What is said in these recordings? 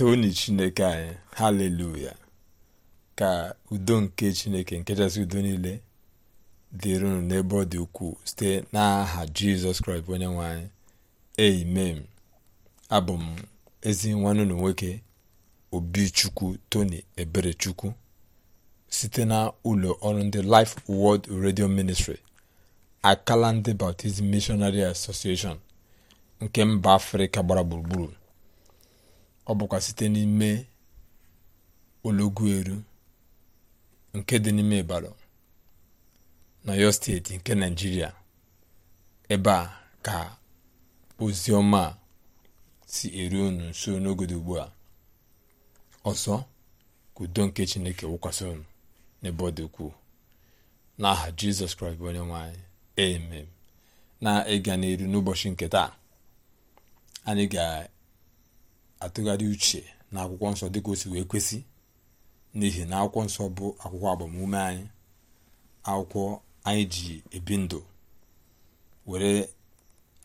toni chineke anyị haleluya ka udo nke chineke nkechasị udo niile dịrị unu n'ebe ọ dị ukwuu site n'aha jizọs kraịst onye nwe anyị amen abụ m ezi nwanne unu nwoke obichukwu tony eberechukwu site na ụlọ ọrụ ndị life world redio ministry akala ndị baptizm missionary association nke mba afrịka gbara gburugburu ọ bụkwa site n'ime elu nke dị n'ime Ịbarị n'Ọyọ steeti nke Naịjirịa ebe a ka ozi ọma si eru unu nso n'oge ugbu a ọzọ ka nke Chineke wụkwasị unu n'ebe ọ dị ukwuu n'aha Jizọs Kraịst bụ onye nwe anyị amen na ịga n'elu n'ụbọchị nke taa anyị ga atụgharị uche na akwụkwọ nsọ dịka o si wee kwesị n'ihi na akwụkwọ nsọ bụ akwụkwọ agbamume anyị akwụkwọ anyị ji ebi ndụ were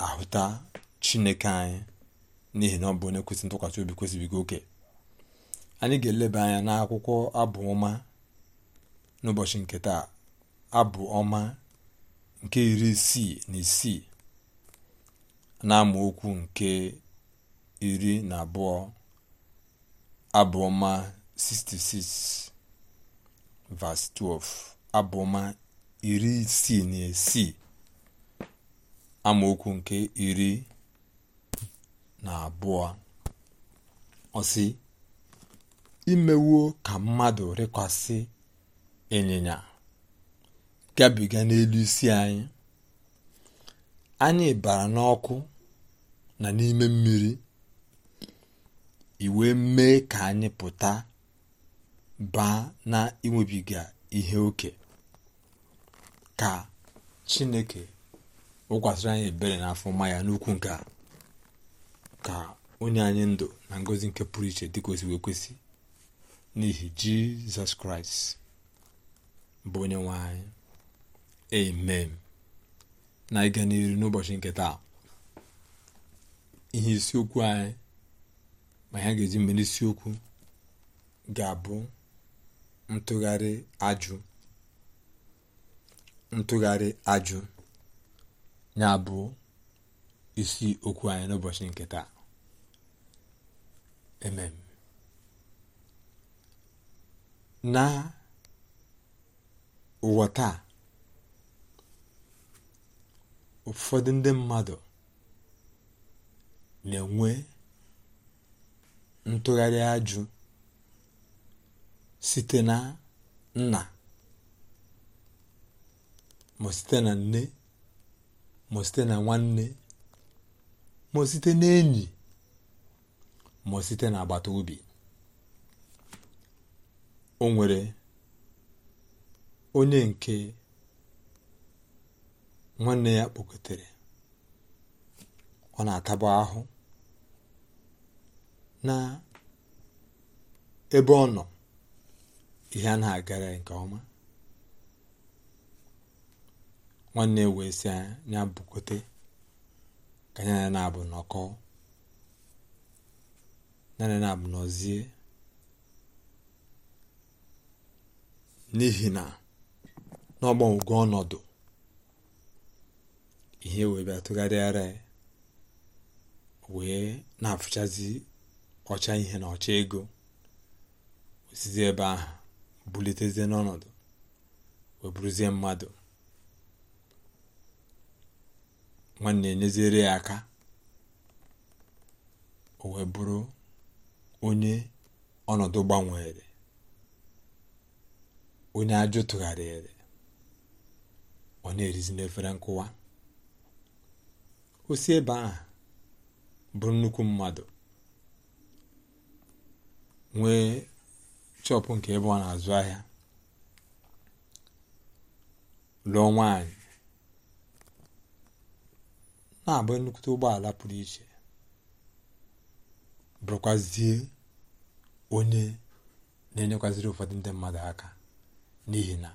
ahụta chineke anyị n'ihi na ọ bụ onye kwesị ntụkwasị obi kwesịbigo oke anyị ga-eleba anya n'akwụkwọ abụ ọma n'ụbọchị nke taa abụ ọma nke iri isii na isii na okwu nke iri na abụọ 66 verse 12 abụ iri isii na isii amaokwu nke iri na abụọ ọsị imewo ka mmadụ rịkwasị ịnyịnya gabiga n'elu isi anyị anyị bara n'ọkụ na n'ime mmiri iwe mee ka anyị pụta baa na iwebiga ihe oke ka chineke wụkwasịrị anyị ebere n'afọ maya ya n'ukwu nke a ka onye anyị ndụ na ngozi nke pụrụ iche dị wee kwesị n'ihi jizọs kraịst bụ onye nwe anyị amen na ịga n'iru n'ụbọchị nke taa ihe isiokwu anyị ma ihe a ga-eji ga-abụ ntụgharị ajụ ntụgharị ajụ ya bụ isi okwu anyị n'ụbọchị nke taa emem na ụwa taa ụfọdụ ndị mmadụ na-enwe ntụgharị ajụ site na nna ma site na nne ma site na nwanne ma site na enyi ma site na agbata obi o nwere onye nke nwanne ya kpọkọtara, ọ na atabu ahụ na ebe ọ nọ ihe a na-agara nke ọma nwanne wee si ya bụkote ka ya na-abụ nọkọ naanị na-abụ nọzie n'ihi na n'ọgbanwego ọnọdụ ihe wee bịa tụgharịara wee na-afụchazi ọcha ihe na ọcha ego osizi ebe ahụ bulitezie n'ọnọdụ weburuzie mmadụ nwanne enyeziere ya aka o wee onye ọnọdụ gbanwere onye ajụ tụgharịrị ọ na-erizi n'efere nkụwa osi ebe ahụ bụ nnukwu mmadụ nwee chọpụ nke ebe ọ na-azụ ahịa lụọ nwaanyị na-abụ nnukwu ụgbọala pụrụ iche bụrụkwazie onye na-enyekwaziri ụfọdụ ndị mmadụ aka n'ihi na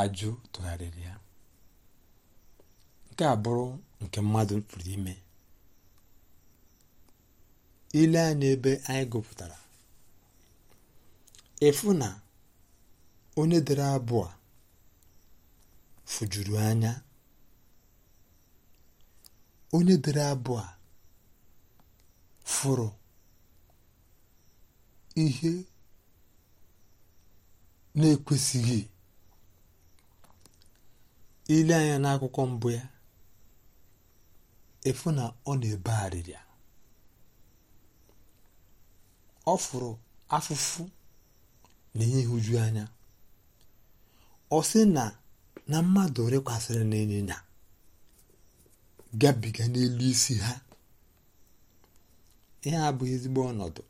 ajụ tụgharịrị ya nke a bụrụ nke mmadụ pụrụ ime ile anya ebe anyị gụpụtara efu na onye dere abụọ fujuru anya onye dere abụọ furu ihe na-ekwesịghị ile anya n'akwụkwọ mbụ ya efu na ọ na-ebe arịrịa ọ fụrụ afụfụ na ihe anya ọ sị na na mmadụ rekwasịrị na ịnyịnya gabiga n'elu isi ha ihe a bụ ezigbo ọnọdụ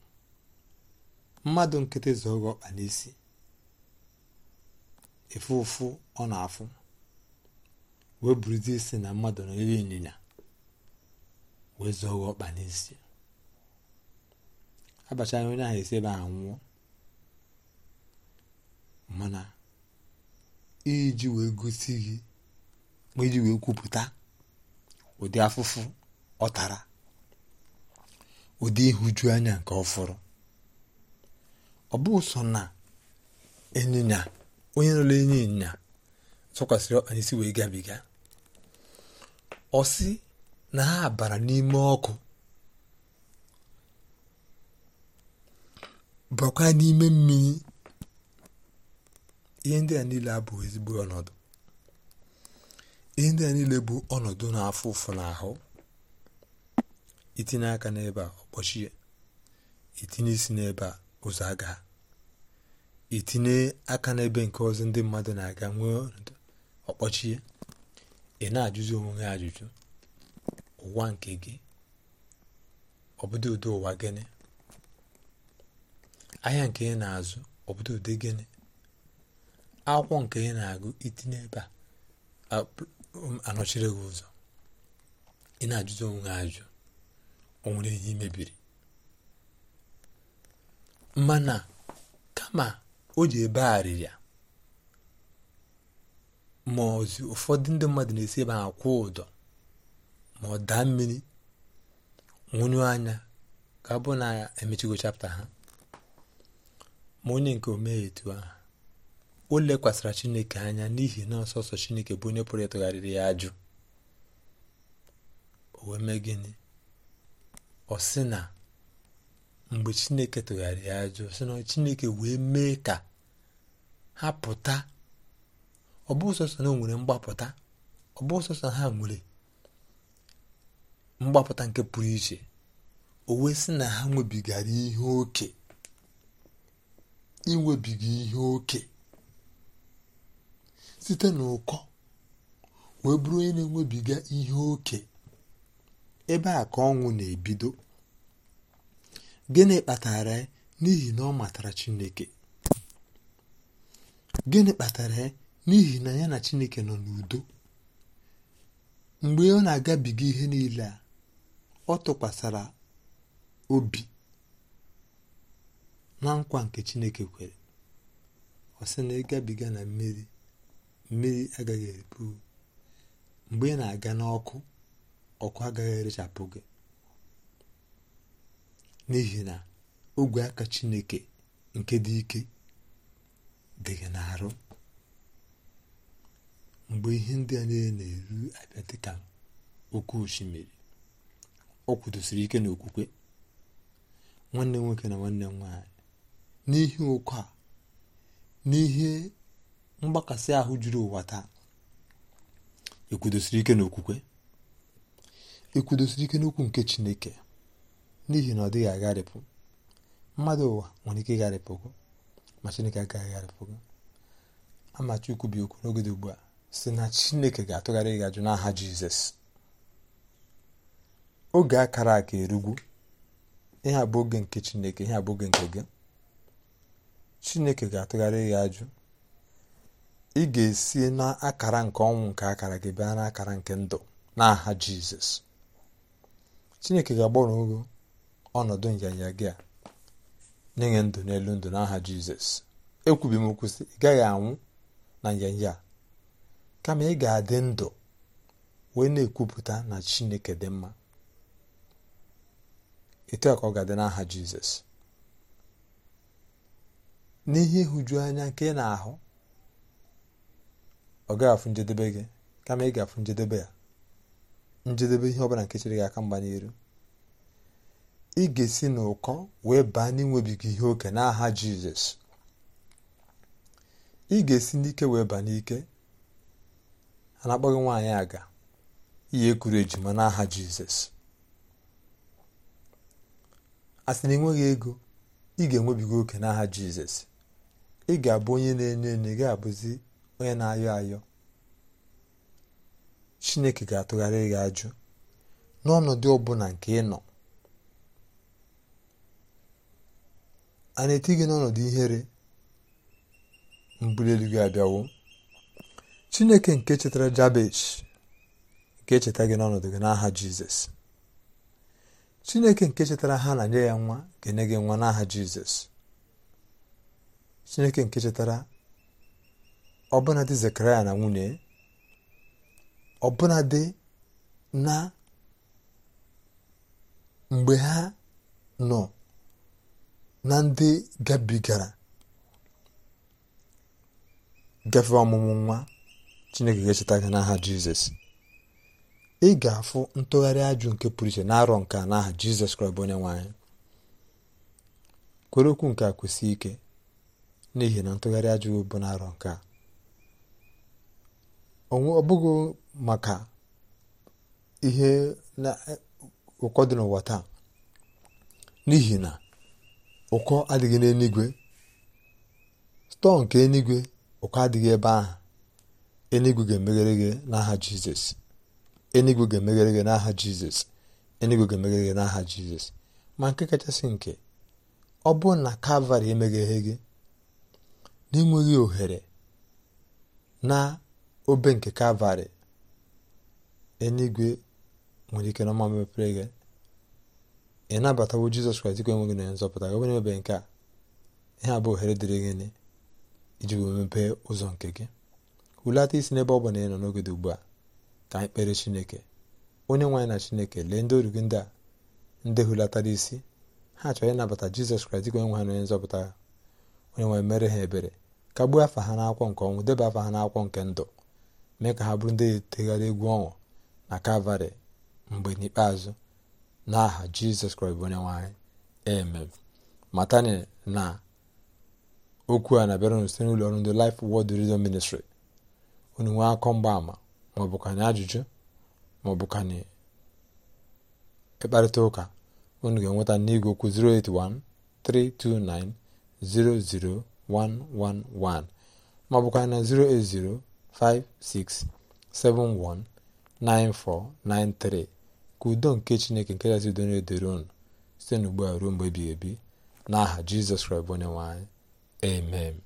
mmadụ nkịtị zọghị ọkpa n'isi efu ụfụ ọ na-afụ wee buruzie isi na mmadụ n'elu ịnyịnya wee zọghị ọkpa n'isi abachara onye ahụ esi ebe anwụọ mana iji wee gosi gị ma iji wee kwupụta ụdị afụfụ ọ tara ụdị ịhụju anya nke ọfụrụ ọ bụ sọ na ịnyịnya onye nọrọ enye ịnyịnya tụkwasịrị si wee gabiga ọ si na ha bara n'ime ọkụ bakwa n'ime mmiri ihe ndị a niile abụghị ezigbo ọnọdụ ihe ndị a niile bụ ọnọdụ na-afụ ụfụ n'ahụ itinye aka n'ebe a ọkpọchie itinye isi n'ebe a ụzọ aga itinye aka n'ebe nke ọzọ ndị mmadụ na-aga nwee ọnọdụ ọkpọchie ị na-ajụzi onwe ya ajụjụ ụwa nke gị ọbụdị ụdị ụwa gịnị ahịa nke ị na-azụ obodo ụdị gịnị akwụkwọ nke ị na-agụ itinye ebe a um, anọchiri gị ụzọ ị na-ajụzi onwe gị ajụ o nwere ihe mebiri mana kama o ji ebe arịrịa ma ozi ụfọdụ ndị mmadụ na-esi ebe ha kwụ ụdọ ma ọ daa mmiri nwụnyụ anya ka bụ na emechigo chapta ha ma onye nke omeghe etu ahụ o lekwasịra chineke anya n'ihi na ọsọsọ chineke bụ onye pụrụ ịtụgharịrị ya ajụ o wee mee gịnị ọ sị na mgbe chineke tụgharịrị ya ajụ sị na chineke wee mee ka ha pụta ọ bụ sọsọ na nwere mgbapụta ọ bụ ha nwere mgbapụta nke pụrụ iche o wee sị na ha nwebigara ihe oke inwebiga ihe oke site n'ụkọ wee bụrụ onye na-enwebiga ihe oke ebe a ka ọnwụ na-ebido gịnị kpatara n'ihi na ọ matara chineke gịnị kpatara ya n'ihi na ya na chineke nọ n'udo mgbe ọ na-agabiga ihe niile a ọ tụkwasara obi na nkwa nke chineke kwere ọ sị na ịgabiga na mmiri mmiri agaghị ebu mgbe ị na-aga n'ọkụ ọkụ agaghị erechapụ gị n'ihi na ogwe aka chineke nke dị ike dị gị n'arụ mgbe ihe ndị a niile na-eru abịa dịka oke osimiri o kwudosiri ike n'okwukwe nwanne nwoke na nwanne m nwaanyị n'ihi oke a n'ihe mgbakasị ahụ juru ụwa taa ekwudosiri ike n'okwukwe ekwudosiri ike n'okwu nke chineke n'ihi na ọ dịghị agharịpụ mmadụ ụwa nwere ike ịgharịpụ gị ma chineke agaghị agharịpụ gị okwu n'oge dị ugbu a si na chineke ga-atụgharị gị ajụ n'aha jizọs oge akara aka erugwu ihe abụ oge nke chineke ihe abụ nke gị chineke ga-atụgharị ya ajụ ị ga-esi n'akara nke ọnwụ nke akara gị bịa n'akara nke ndụ n'aha jizọs chineke ga-agbanwe ọnọdụ nyanya gị a na ndụ n'elu ndụ n'aha jizọs ekwubi m ị gaghị anwụ na nyanya kama ị ga-adị ndụ wee na-ekwupụta na chineke dị mma etu ka ọ ga-adị n'aha jizọs n'ihe ịhụju anya nke ị na-ahụ ọ gaghị njedebe gị kama ị ga-afụ njedebe ya njedebe ihe ọbụla nke chere gị aka mgba n'iru ị ga-esi n'ụkọ wee baa n'inwebiga ihe oke n'aha jizọs ị ga-esi n'ike wee baa n'ike a na akpọghị nwaanyị aga ihe ekuru ejima n'aha jizọs a sị na enweghị ego ị ga-enwebiga oke n'aha jizọs ị ga-abụ onye na-enyo enyo gị abụzi onye na-ayọ ayọ chineke ga-atụgharị gị ajụ n'ọnọdụ ọbụla nke ị nọ a na-eti gị n'ọnọdụ ihere mbuli gị abịawo chineke nke chetara jabesh ga-echeta gị n'ọnọdụ gị n'aha jizọs chineke nke chetara ha na nye ya nwa ga-enye gị nwa n'aha jizọs chineke nke chetara ọbụnadị zekaraya na nwunye ọbụnadị na mgbe ha nọ na ndị gabigara gafe ọmụmụ nwa chineke ga-echeta n'aha jizọs ị ga-afụ ntụgharị ajụ nke pụrụ iche na-arọ nke a n'aha jizọs kraịst onye nwanyị kwere okwu nke a kwụsị ike n'ihi na ntụgharị ajụghị bụ na-arọ nke a ọ bụghị maka ihe na ụkọ dị n'ụwa taa n'ihi na ụkọ adịghị n'eluigwe stọọ nke eluigwe ụkọ adịghị ebe ahụ eluigwe ga-emeghere gị n'aha jizọs eluigwe ga-emeghere gị n'aha jizọs eluigwe ga-emeghere gị n'aha jizọs ma nke kachasị nke ọ bụ na kalvarị emegheghị gị n'enweghị ohere na obe nke kalvarị eluigwe nwere ike n'ọma mepere gị ị nabatawo jizọs kraịst ka enweghị na nzọpụta gị onye ebe nke a ihe a bụ ohere dịrị gị gịnị iji wee mepee ụzọ nke gị hulata isi n'ebe ọ bụla ị nọ n'oge dị ugbu a ka anyị kpere chineke onye nwe anyị na chineke lee ndị oru gị ndị a ndị hulatara isi ha chọrọ ịnabata jizọs kraịst ka onye ha na onye nzọpụta onye nwere mere ha ebere gbuo afa ha n'akwọ nke ọnwụ deba afa ha n'akwọ nke ndụ mee ka ha bụrụ ndị tegharị egwu ọnwụ na kalvarị mgbe n'ikpeazụ n'aha jizọs kraịst bụ onye nwanyị amen matani na okwu a na-abịara unu site n'ụlọ ọrụ ndị Life Word Radio Ministry unu nwee akọ mgbaama maọbụkanye ajụjụ maọbụkanye ịkparịta ụka unu ga-enweta n'igwe okwu 081 329 00111 maọbụkwa na 08056719493 ka udo nke chineke nke kasị udo na-edere unu site n'ugbu a ruo mgbe ebighị ebi n'aha jizọs kraịst bụ onye amen